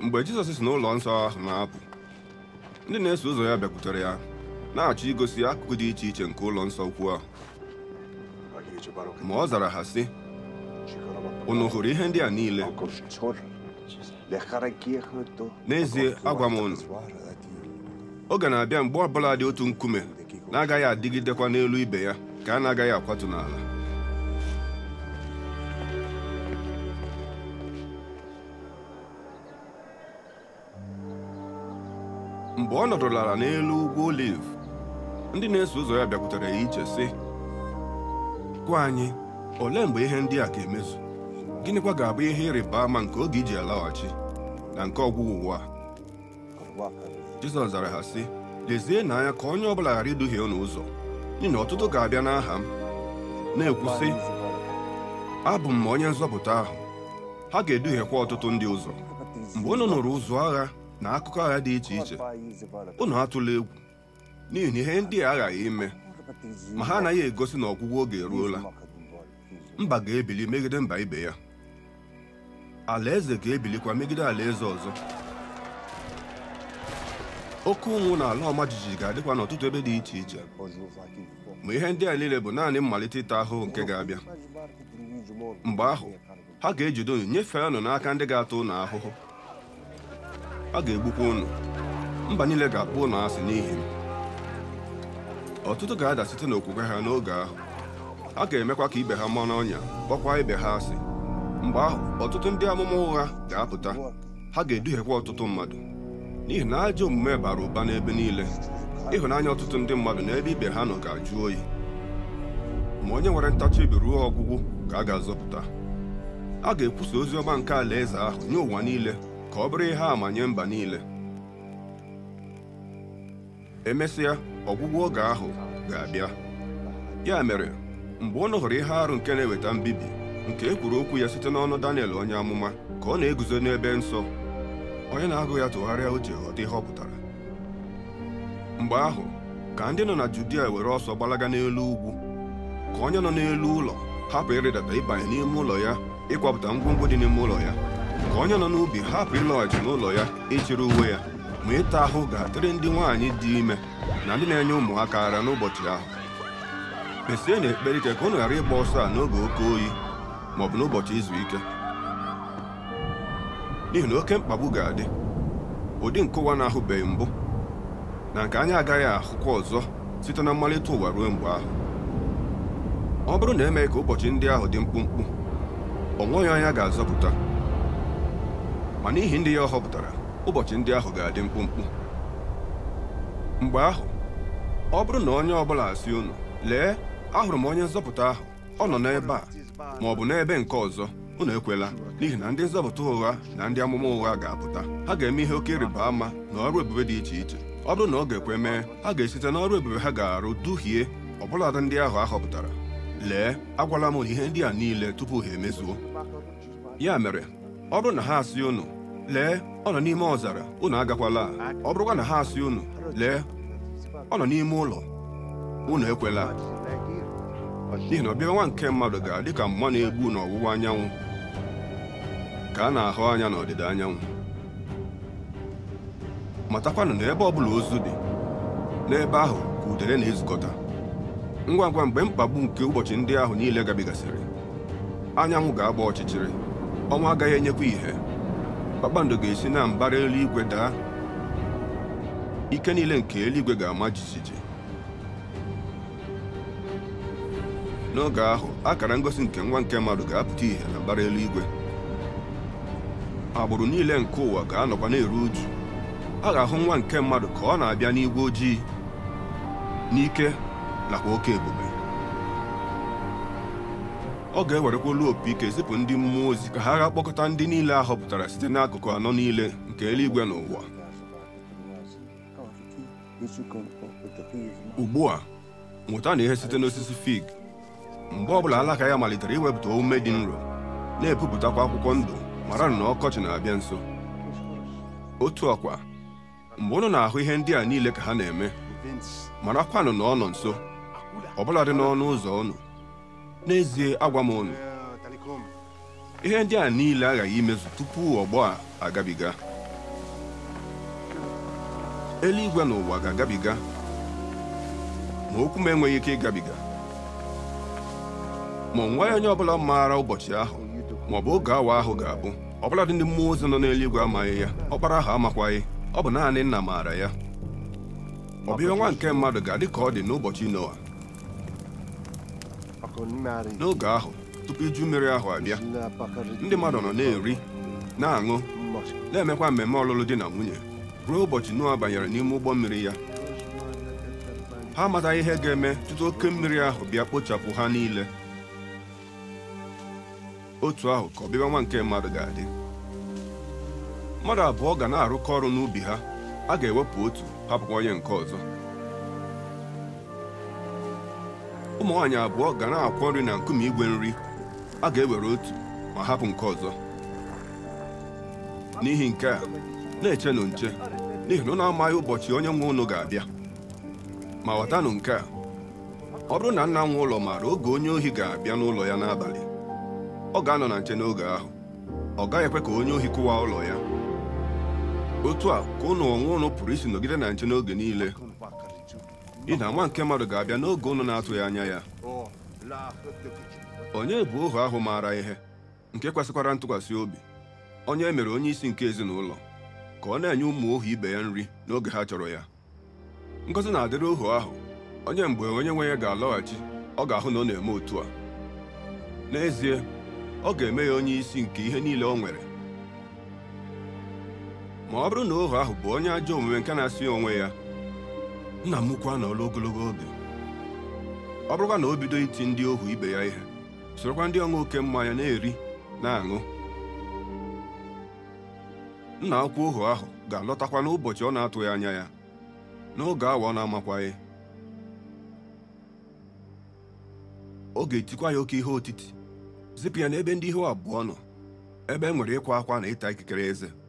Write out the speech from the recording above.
mgbe jizọs si n'ụlọ nsọ ahụ na-apụ ndị na-eso ụzọ ya bịakwutere ya na-achọ igosi akụkụ dị iche iche nke ụlọ nsọ ukwu ahụ ma ọ zara ha sị unu hụrụ ihe ndị a niile n'ezie agwa m unu oge na-abịa mgbe ọbụla dị otu nkume na-agaghị adịgidekwa n'elu ibe ya ka a na-agaghị akwatu n'ala mgbe ọ nọdụlara n'elu ugwu oliv ndị na-eso ụzọ ya bịakwutere ya iche sị gwa anyị olee mgbe ihe ndị a ga-emezu gịnịkwa ga-abụ ihe ịrịba ama nke oge iji alaghachi na nke ọgwụgwụ ụwa Jizọs zara ha sị lezienụ anya ka onye ọbụla ghara iduhie unu ụzọ n'ihi na ọtụtụ ga-abịa n'aha m na-ekwu sị abụ m onye nzọpụta ahụ ha ga-eduhiekwa ọtụtụ ndị ụzọ mgbe unu nụrụ ụzọ agha na akụkọ agha dị iche iche unu atụla egwu n'ihi na ihe ndị a aghaghị ime ma ha anaghị egosi na ọgwụgwọ oge eruola mba ga-ebili megide mba ibe ya alaeze ga-ebilikwa megide alaeze ọzọ oke ụnwụ na ala ọma jijiji ga-adịkwa n'ọtụtụ ebe dị iche iche ma ihe ndị a niile bụ naanị mmalite ịta ahụhụ nke ga-abịa mgbe ahụ ha ga-ejide unu nyefee n'aka ndị ga-ata ụnọ ahụhụ A ga-egbukwa unu mba niile ga-akpọ ụnụ asị n'ihi m ọtụtụ ga-ada site n'okwukwe ha n'oge ahụ a ga-emekwa ka ibe ha mmanụ ọnya kpọkwa ibe ha asị mgbe ahụ ọtụtụ ndị amụma ụgha ga-apụta ha ga-eduhiekwa ọtụtụ mmadụ n'ihi na ajọ omume bara ụba n'ebe niile ịhụnanya ọtụtụ ndị mmadụ n'ebe ibe ha nọ ga-ajụ oyi ma onye nwere ntachi obi ruo ọgwụgwụ ka a ga-azọpụta a ga-ekwusa ozi ọma nke eze ahụ nye ụwa niile ka ọ bụrụ ihe àmà nye mba niile emesịa ọgwụgwọ oge ahụ ga-abịa ya mere mgbe ọ nụhụrụ ihe arụ nke na-eweta mbibi nke e kwuru okwu ya site n'ọnụ Daniel onye amụma ka ọ na-eguzo n'ebe nsọ onye na-agụ ya tụgharịa uche ghọta ihe ọ pụtara mgbe ahụ ka ndị nọ na Judia were ọsọ gbalaga n'elu ugwu ka onye nọ n'elu ụlọ hapụ ịrịdata ịbanye n'ime ụlọ ya ịkwapụta ngwongwo dị n'ime ụlọ ya ka onye nọ n'ubi hapụ ịlọghachi n'ụlọ ya ịchịrị e uwe ya ma ịta ahụ ga-atịrị ndị nwaanyị dị ime na ndị na-enye ụmụaka ara n'ụbọchị ahụ kpesie na ekpere ike ka ụnụ ghara ịgba ọsọ a n'oge oke oyi ma ọ bụ n'ụbọchị izu ike n'ihi na oke mkpagbu ga-adị ụdị nkụwa na-ahụbeghị mbụ na nke anyị agaghị ahụkwa ọzọ site na mmalite ụwa ruo mgbe ahụ ọ bụrụ na emeghị ka ụbọchị ndị ahụ dị mkpụmkpụ ọ nweghị onye ga-azọpụta ma n'ihi ndị ya ọ họpụtara ụbọchị ndị ahụ ga-adị mkpụmkpụ mgbe ahụ ọ bụrụ na onye ọbụla asị unu lee ahụrụ m onye nzọpụta ahụ ọ nọ n'ebe a ma ọ bụ n'ebe nke ọzọ unu ekwela n'ihi na ndị nzọpụta ụgha na ndị amụma ụgha ga-apụta ha ga-eme ihe oke ịrịba ama na ọrụ ebube dị iche iche ọ bụrụ na ọ ga-ekwe mee ha ga-esite n'ọrụ ebube ha ga-arụ duhie ọbụladị ndị ahụ a lee agwala m ihe ndị a niile tupu ha emezuo ya mere ọ bụrụ na ha asị unu lee ọ nọ n'ime ọzara unu agakwala ọ bụrụkwa na ha asị unu lee ọ nọ n'ime ụlọ unu ekwela n'ihi na ọbịa nwa nke mmadụ gara dị ka mma na-egbu n'ọwụwa anyanwụ ka a na-ahụ anya n'ọdịda anyanwụ matakwanụ na ebe ọbụla ozu dị n'ebe ahụ ka udere na-ezukọta ngwa ngwa mgbe mkpagbu nke ụbọchị ndị ahụ niile gabigasịrị anyanwụ ga-agba ọchịchịrị ọnwa agaghị enyekwa ihe. kpakpando ga-esi na mbara eluigwe daa ike niile nke eluigwe ga-ama jijiji n'oge ahụ akara ngosi nke nwa nke mmadụ ga-apụta ihe na mbara eluigwe agbụrụ niile nke ụwa ga-anọkwa na-eru uju a ga-ahụ nwa nke mmadụ ka ọ na-abịa n'igwe ojii n'ike nakwa oke ebube ọ ga-ewerekwa olu opi ike zipụ ndị mmụọ ozi ka ha kpọkọta ndị niile a họpụtara site n'akụkụ anọ niile nke eluigwe na ụwa ugbu a nwụta na ihe site n'osisi fig mgbe ọbụla alaka ya malitere iwepụta ume dị nro na ebupụtakwa akwụkwọ ndụ mara na ọkọchị na-abịa nso otu ọkwa mgbe ụnụ na-ahụ ihe ndị a niile ka ha na-eme marakwanụ na ọ nọ nso ọbụladị n'ọnụ ụzọ ụnụ n'ezie agwa m unu ihe ndị a niile aghaghị imezu tupu ọgbọ a agabiga eluigwe na ụwa ga-agabiga ma okwu m enweghị ike ịgabiga ma ọ nweghị onye ọbụla maara ụbọchị ahụ ma ọ bụ oge awa ahụ ga-abụ ọbụladị ndị mmụọ ozi nọ n'eluigwe amaghị ya ọkpara ahụ amakwaghị ọ bụ naanị nna maara ya ọbịa nwa nke mmadụ ga-adị ka ọ dị n'ụbọchị noa n'oge ahụ tupu iju mmiri ahụ abịa ndị mmadụ nọ na-eri na-aṅụ na-emekwa mmemme ọlụlụ di na nwunye ruo ụbọchị Noa banyere n'ime ụgbọ mmiri ya ha amataghị ihe ga-eme tutu oke mmiri ahụ bịa kpochapụ ha niile otu ahụ ka ọbịbịa nwa nke mmadụ ga-adị mmadụ abụọ ga na-arụkọ ọrụ n'ubi ha a ga-ewepụ otu hapụkwa onye nke ọzọ ụmụ nwaanyị abụọ ga na-akwọ nri na nkume igwe nri a ga-ewere otu ma hapụ nke ọzọ n'ihi nke a na-echenụ nche n'ihi na ụnụ amaghị ụbọchị onye nwe ụnụ ga-abịa ma ghọtanụ nke a ọ bụrụ na nna nwe ụlọ maara oge onye ohi ga-abịa n'ụlọ ya n'abalị ọ ga-anọ na nche n'oge ahụ ọ gaghị ekwe ka onye ohi kụwa ụlọ ya otu a ka ụnụ onwe ụnụ pụrụ isi nọgide na nche n'oge niile ịda nwa nke mmadụ ga-abịa n'oge ụnụ na-atụghị anya ya onye bụ ohu ahụ maara ihe nke kwesịkwara ntụkwasị obi onye e mere onye isi nke ezinụlọ ka ọ na-enye ụmụ ohu ibe ya nri n'oge ha chọrọ ya ngozi na-adịrị ohu ahụ onye mgbe onye nwe ya ga-alọghachi ọ ga-ahụ na ọ na-eme otu a n'ezie ọ ga-eme ya onye isi nke ihe niile o nwere ma ọ bụrụ na ohu ahụ bụ onye ajọ omume nke na-asị onwe ya nna m ukwu anọọla ogologo oge ọ bụrụkwa na o bido iti ndị ohu ibe ya ihe sorokwa ndị ọṅụ oke mmanya na-eri na-aṅụ nna akwụkwọ ohu ahụ ga-alọtakwa n'ụbọchị ọ na-atụghị anya ya n'oge awa ọ na-amakwaghị ọ ga-etikwa ya oke ihe otiti zipụ ya n'ebe ndị ihe abụọ nọ ebe e nwere ịkwa akwa na ịta ikikere eze